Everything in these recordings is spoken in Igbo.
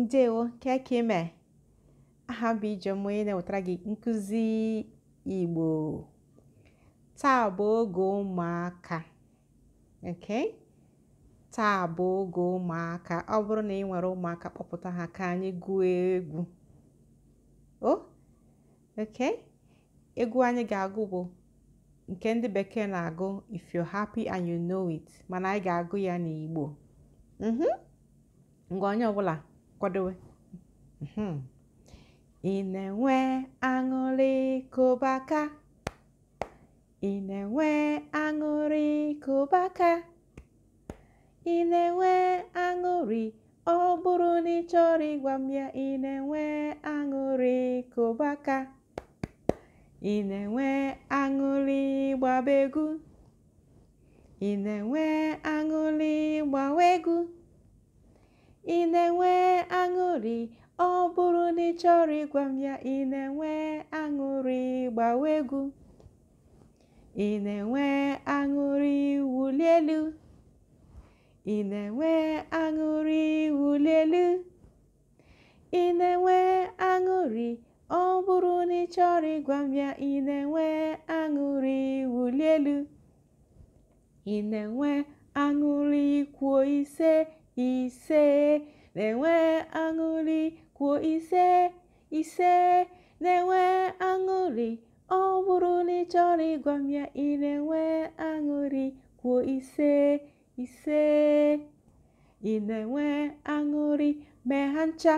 Ndewo kekime aha bụ ije onye na-ewetara gị nkụzi Igbo taa bụ oge ụmụaka okay taa bụ oge ụmụaka ọ bụrụ na ị nwere ụmụaka kpọpụta ha ka anyị gụọ egwu o okay egwu anyị ga-agụ bụ nke ndị bekee na-agụ if you're happy and you know it mana anyị ga-agụ ya n'Igbo ngwa mhm. onye ọbụla kwadowe ị mm-hmm. na-enwe aṅụrị kọbaka. na-enwe aṅụrị kụbaka ị na-enwe aṅụrị ọ bụrụ na ị chọrọ ịgwa ya ị na-enwe aṅụrị kụbaka ị na-enwe aṅụrị gbabegu egwu ị na-enwe aṅụrị gbawa egwu na-enwe ọ bụrụ na ị chọrọ ịgwa m ya ị na-enwe aṅụrị gbawa egwu ị na-enwe aṅụrị wulielu. ị na-enwe aṅụrị wulielu. ị na-enwe aṅụrị ọ bụrụ na ị chọrọ ịgwa m ya ị na-enwe aṅụrị wulielu. ị na-enwe aṅụrị kwuo ise ise na-enwe aṅụrị kwuo ise ise na-enwe aṅụrị ọ bụrụ na ị chọrọ ịgwa m ya ị na-enwe aṅụrị kwuo ise ise ị na-enwe aṅụrị mee ha ncha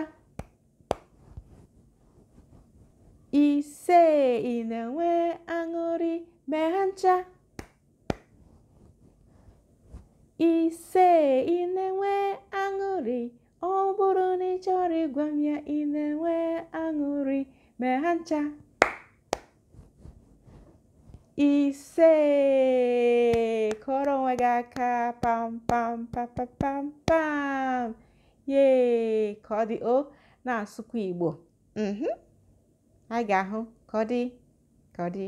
ise ị na-enwe aṅụrị mee ha ncha ise chọrọ ịgwa m ya ị na-enwe aṅụrị mee ha ncha ise kụọrọ onwe gị aka pam pam pam pam pam ye ka ọ dị o na-asụkwa Igbo ha mhm. ga-ahụ ka ọ dị ka ọ dị